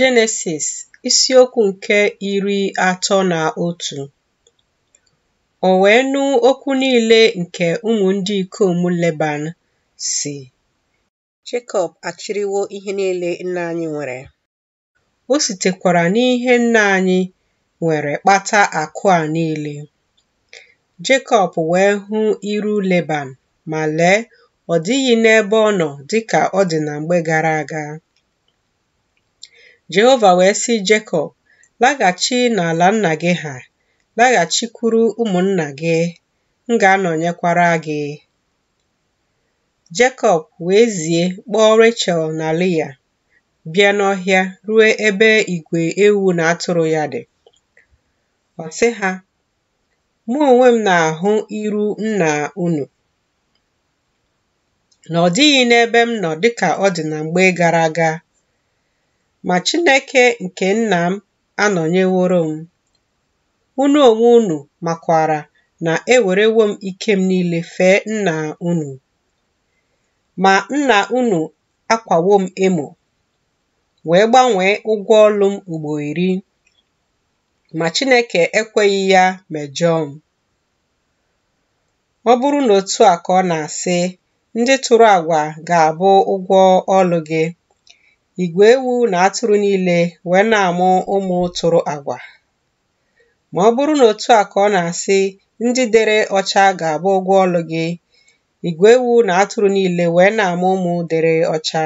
Jenesis isiokwu nke iri atọ na otu O wee nụ okwu niile nke ụmụ ndị ikom Leban si Jekọb achịrịwo ihe niile nna anyị nwere o sitekwara n'ihe nna anyị nwere kpata akụ a niile Jekọb wee hụ iru Leban ma lee ọ dịghị n'ebe ọ nọ dịka ọ dị na mgbe gara aga Jehova wee sị Jekọb, laghachi n'ala nna gị ha, laghachikwuru ụmụnna gị, m ga-anọnyekwara gị. Jekọb wee zie kpọọ rachel na Lịa, bịa n'ọhịa ruo ebe igwe ewu na atụrụ ya dị. Ọ sị ha, mụ onwe m na-ahụ iru nna unu, na ọ dịghị n'ebe m nọ dịka ọ dị na mgbe gara aga ma Chineke nke nna m anọnyeworo m. Unu onwe unu makwara na ewerewo m ike m niile fee nna unu, ma nna unu akwawo m emo, wee gbanwee ụgwọ ọlụ m ugbo iri, ma Chineke ekweghị ya mejọọ m. Ọ bụrụ na otu a ka ọ na-asị, ndị tụrụ agwa ga-abụ ụgwọ ọlụ gị. Igwe ewu na atụrụ niile wee na-amụ ụmụ tụrụ agwa. Ma ọ bụrụ na otu a ka ọ na-asị ndị dere ọcha ga-abụ ụgwọ ọlụ gị, igwe ewu na atụrụ niile wee na-amụ ụmụ dere ọcha.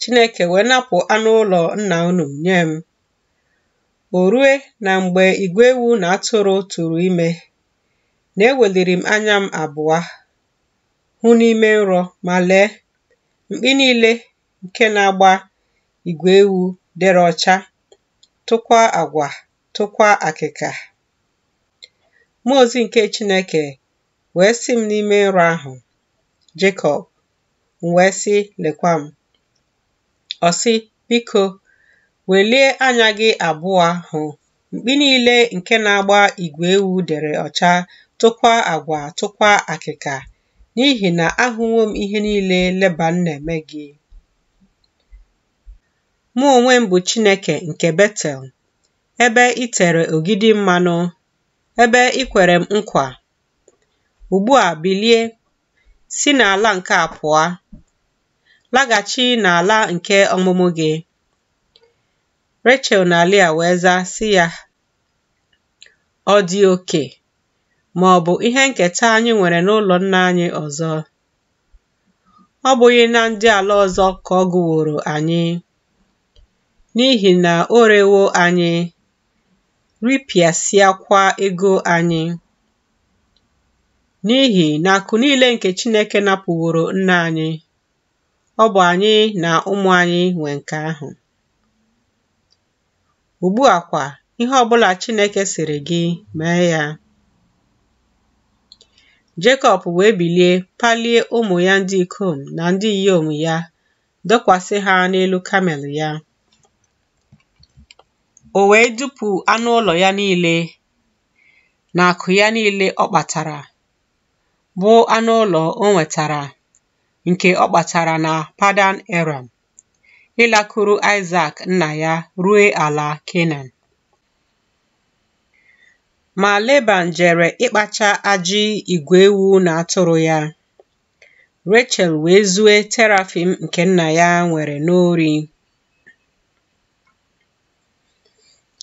Chineke wee napụ anụ ụlọ nna unu nye m. O rue na mgbe igwe ewu na atụrụ tụrụ ime, na eweliri m anya m abụọ hụ n'ime nrọ ma lee mkpi niile Nke na-agba ìgwè ewu dere ọcha tụkwa àgwà tụkwa akịka. mmụọ ozi nke Chineke wee sị m n'ime nrọ ahụ Jekọb m wee sị lekwa m ọ sị biko welie anya gị abụọ hụ mkpi niile nke na-agba igwe ewu dere ọcha tụkwa agwa tụkwa akịka n'ihi na ahụwo m ihe niile Leban na-eme gị Mụ onwe m bụ Chineke nke Betel, ebe i tere ogidi mmanụ, ebe i kwere m nkwa. Ugbu a bilie, si n'ala nke a pụọ, laghachi n'ala nke ọmụmụ gị. rachel na Lea wee zaa sị ya, ọ dị oke ma ọ bụ ihe nketa anyị nwere n'ụlọ nna anyị ọzọ. Ọ bụghị na ndị ala ọzọ ka ọ gụworo anyị. n'ihi na o rewo anyị ripịasịakwa ego anyị n'ihi na akụ niile nke Chineke napụworo nna anyị ọ bụ anyị na ụmụ anyị nwe nke ahụ ugbu a kwa ihe ọbụla Chineke sịrị gị mee ya Jekọb wee bilie palie ụmụ ya ndị ikom na ndị inyom ya dokwasị ha n'elu kamel ya O wee dupu anụ ụlọ ya niile na akụ ya niile ọ kpatara bụ anụ ụlọ o nwetara nke ọ kpatara na Padan eram ịlakụrụ Isaac nna ya rue ala Kenan ma Leban jere ịkpacha ajị igwe ewu na atụrụ ya Rachel wee zue terafim nke nna ya nwere n'ori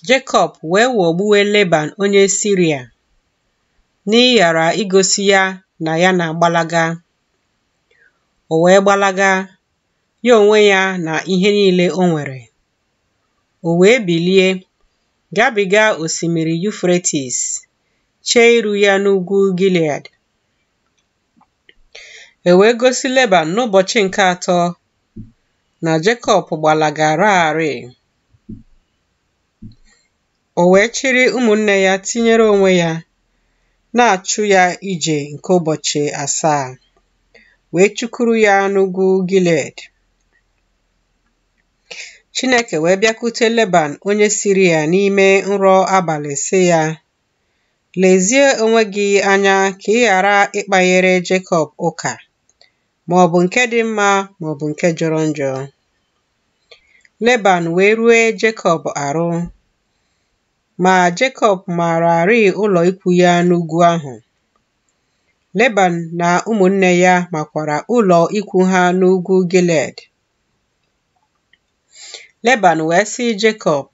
Jekọb wee ghọgbuwe Leban onye Siria n'ịghara igosi ya na ya na-agbalaga. O wee gbalaga, ya onwe ya na ihe niile o nwere. O wee bilie gabiga osimiri Yufretis, chee iru ya n'ugwu Gilead. E wee gosi Leban n'ụbọchị nke atọ na Jekọb gbalagaraarị o wee chịrị ụmụnne ya tinyere onwe ya na-achụ ya ije nke ụbọchị asaa wee chukuru ya n'ugwu Gilead Chineke wee bịakwute Leban onye siri ya n'ime nrọ abalị sị ya lezie onwe gị anya ka ị ghara ịkpanyere Jekọb ụka ma ọ bụ nke dị mma ma ọ bụ nke jọrọ njọ Leban wee rue Jekọb arụ Ma Jekọb maararị ụlọ ikwu ya n'ugwu ahụ. Leban na ụmụnne ya makwara ụlọ ikwu ha n'ugwu Gilead. Leban wee sị Jekọb,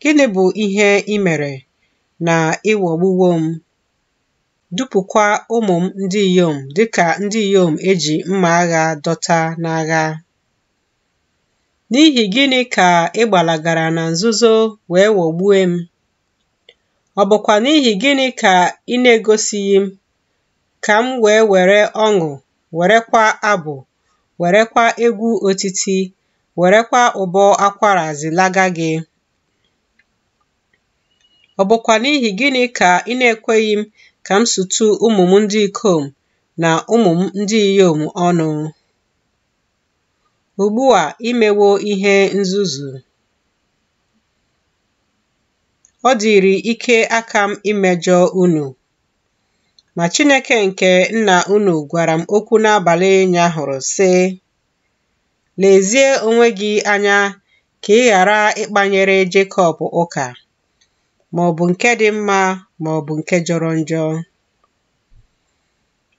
Gịnị bụ ihe ị mere na ịwọgbuwo m, dupụkwa ụmụ m ndị inyom dịka ndị inyom eji mma agha dọta n'agha? N'ihi gịnị ka ị gbalagara na nzuzo wee ghọgbue m? Ọ bụkwa n'ihi gịnị ka ị na-egosighị m, ka m wee were ọṅụ, werekwa abụ, werekwa egwu otiti, werekwa ụbọ akwara zilaga gị? Ọ bụkwa n'ihi gịnị ka ị na-ekweghị m ka m sutu ụmụ m ndị ikom na ụmụ m ndị inyom ọnụ? Ugbu a imewo ihe nzuzu. ọ dịịrị ike aka m imejọ unu. Ma Chineke nke nna unu gwara m okwu n'abalị hụrụ sị, Lezie onwe gị anya ka ị ghara ịkpanyere Jekọb ụka, ma ọ bụ nke dị mma ma ọ bụ nke jọrọ njọ.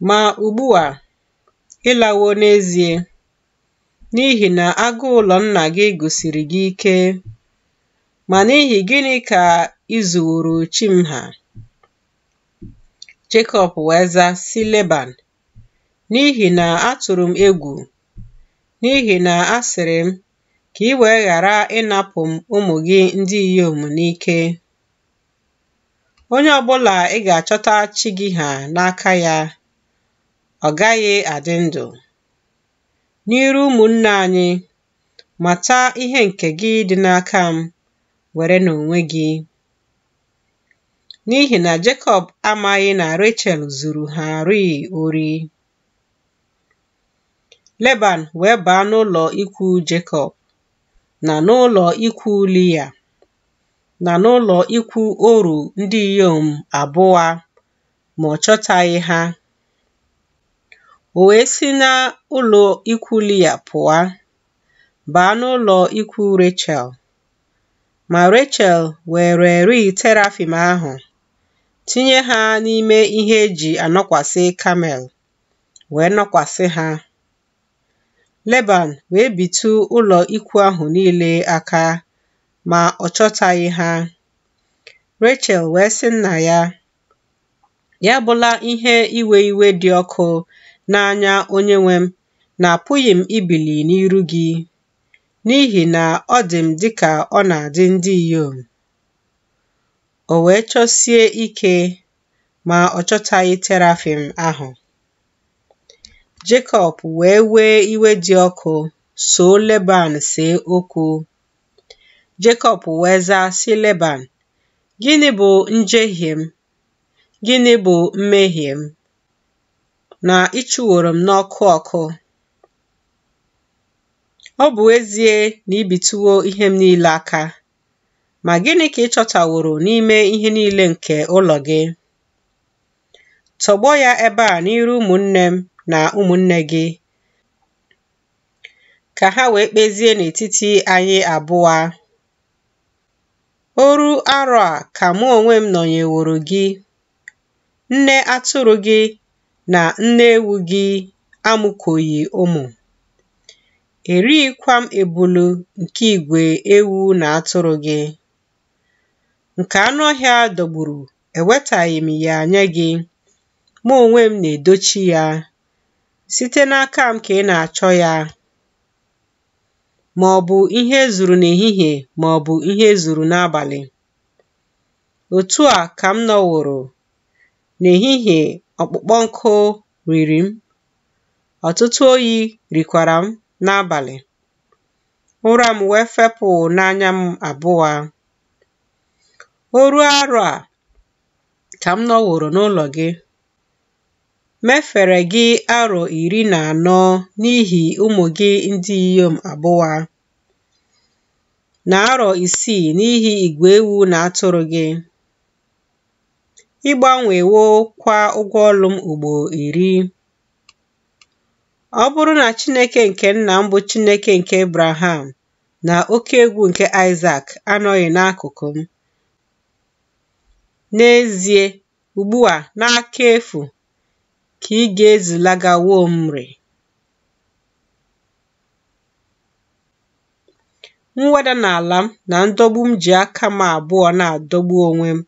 Ma ugbu a, ịlawo n'ezie, n'ihi na agụ ụlọ nna gị gosiri gị ike. Ma n'ihi gịnị ka i zuworo chi m ha. Jekọb wee zaa sị Leban, n'ihi na atụrụ m egwu, n'ihi na a sịrị m ka ị wee ghara ịnapụ m ụmụ gị ndị inyom n'ike. Onye ọbụla ị ga-achọta chi gị ha n'aka ya, ọ gaghị adị ndụ. N'iru ụmụnna anyị, mata ihe nke gị dị n'aka m, were n'onwe gị. n'ihi na Jekọb amaghị na Rechel zuru ha rịị ori. Leban wee baa n'ụlọ ikwu Jekọb na n'ụlọ ikwu Lia na n'ụlọ ikwu oru ndị inyom abụọ ma ọ chọtaghị ha. O wee si n'ụlọ ikwu Lia pụọ baa n'ụlọ ikwu Rechel ma Rechel were rịị terafim ahụ tinye ha n'ime ihe eji anọkwasị kamel wee nọkwasị ha. Leban wee bitu ụlọ ikwu ahụ niile aka ma ọ chọtaghị ha. Rechel wee sị nna ya, ya bụla ihe iwe iwe dị ọkụ n'anya onyenwe m na apụghị m ibili n'iru gị n'ihi na ọ dị m dịka ọ na-adị ndị inyom. O wee chọsie ike ma ọ chọtaghị Terafim ahụ. Jekọb wee wee iwe dị ọkụ soo Leban see okwu. Jekọb wee zaa sị Leban, Gịnị bụ njehie m? Gịnị bụ mmehie m? Na ịchụworo m n'ọkụ ọkụ. Ọ bụ ezie na ibituwo ihe m niile aka, Ma gịnị ka ị chọtaworo n'ime ihe niile nke ụlọ gị? Tọgbọ ya ebe a n'iru ụmụnne m na ụmụnne gị, ka ha wee kpezie n'etiti anyị abụọ. Oru arọ a ka mụ onwe m nọnyeworo gị, nne atụrụ gị na nne ewu gị amụkọghị ụmụ. Erighịkwa m ebulu nke igwe ewu na atụrụ gị. nke anụ ọhịa dọgburu ewetaghị m ya nye gị mụ onwe m na-edochi ya site n'aka m ka ị na-achọ ya ma ọ bụ ihe e zuru n'ehihie ma ọ bụ ihe e zuru n'abalị otu a ka m nọworo n'ehihie ọkpụkpọ nkụ riri m ọtụtụ oyi rikwara m n'abalị ụra m wee fepụ n'anya m abụọ o ruo arọ a ka m nọworo n'ụlọ gị mefere gị arọ iri na anọ n'ihi ụmụ gị ndị inyom abụwa na arọ isii n'ihi igwe ewu na atụrụ gị ịgbanwewo kwa ụgwọ ọlụ m ugbo iri ọ bụrụ na Chineke nke nna m bụ Chineke nke ibraham na oke egwu nke Isaac anọghị n'akụkụ m N'ezie, ugbu a n'aka efu ka ị ga-ezilagawo Omri. Mweda n'ala m na ndọgbu m ji aka m abụọ na-adọgbu onwe m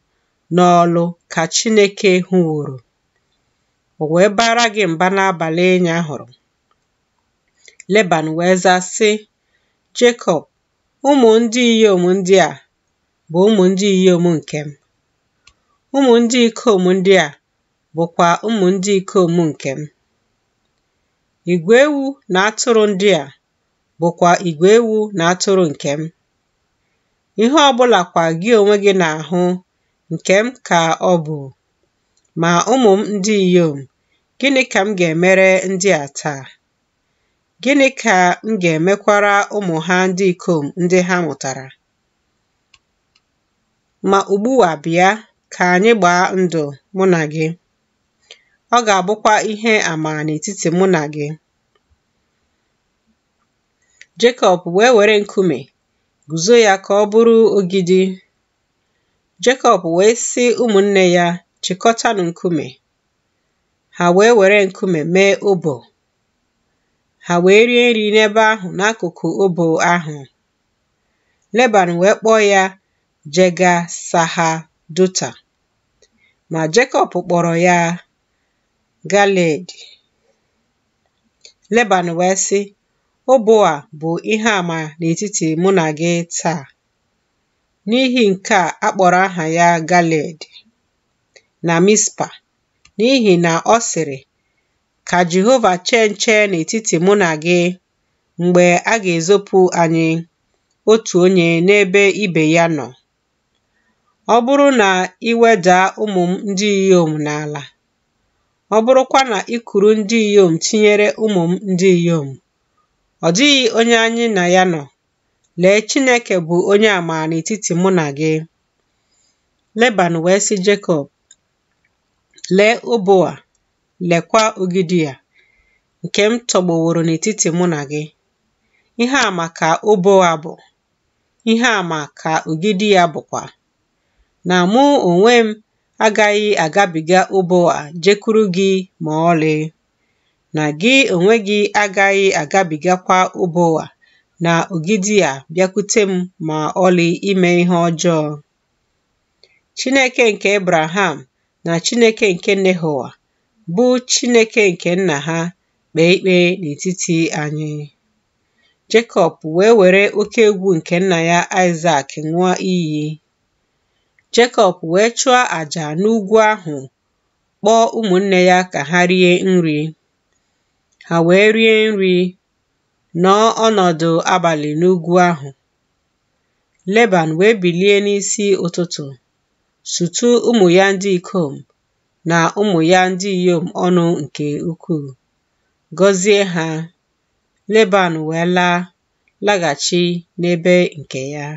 n'ọlụ ka Chineke hụworo, o wee bara gị mba n'abalị ịnya hụrụ Leban wee zaa sị, Jekọb, ụmụ ndị inyom ndị a bụ ụmụ ndị inyom nke m. Ụmụ ndị ikom ndị a bụkwa ụmụ ndị ikom nke m. Igwe ewu na atụrụ ndị a bụkwa igwe ewu na atụrụ nke m. Ihe ọ bụlakwa gị onwe gị na-ahụ nke m ka ọ bụ. Ma ụmụ m ndị inyom, gịnị ka m ga-emere ndị a taa? Gịnị ka m ga-emekwara ụmụ ha ndị ikom ndị ha mụtara? Ma ugbu a bịa, Ka anyị gbaa ndụ mụ na gị. Ọ ga-abụkwa ihe àmà n'etiti mụ na gị. Jekọb wee were nkume guzo ya ka ọ bụrụ ogidi. Jekọb wee sị ụmụnne ya, chịkọtanụ nkume. Ha wee were nkume mee obo. Ha wee rie nri n'ebe ahụ n'akụkụ obo ahụ. Leban wee kpọọ ya jega Saha, duta ma Jekọb kpọrọ ya galed Leban wee sị, Obo a bụ ihe àmà n'etiti mụ na gị taa. N'ihi nke a akpọrọ kpọrọ aha ya galed na Mispa n'ihi na ọ sịrị, Ka Jehova chee nche n'etiti mụ na gị mgbe a ga-ezopụ anyị otu onye n'ebe ibe ya nọ. ọ bụrụ na ị wedaa m ndị inyom n'ala, ọ bụrụkwa na i ndị inyom tinyere ụmụ m ndị inyom, ọ dịghị onye anyị na ya nọ. Lee, Chineke bụ onye àmà n'etiti mụ na gị. Leban wee sị Jekọb, lee ụbọ a, lekwa ogidi ya! nke m tọgbọworo n'etiti mụ na gị. Ihe a maka ụbọ a bụ, ihe àmà ka ogidi ya bụkwa. na mụ onwe m agaghị agabiga ụba jekwuru jekuru gị ma ọlị na gị onwe gị agaghị agabigakwa ụba na ogidi a bịakwute m ma ọlị ime ihe ọjọọ Chineke nke Abraham na Chineke nke Nehoa bụ Chineke nke nna ha kpee ikpe n'etiti anyị Jekọb wee were oke egwu nke nna ya Aịsak ṅụọ iyi Jekọb wee chụọ àjà n'ugwu ahụ kpọọ ụmụnne ya ka ha rie nri. Ha wee rie nri, nọọ ọnọdụ abalị n'ugwu ahụ. Leban wee bilie n'isi ụtụtụ sutu ụmụ ya ndị ikom na ụmụ ya ndị inyom ọnụ nke ukwuu, gọzie ha. Leban wee laa laghachi n'ebe nke ya.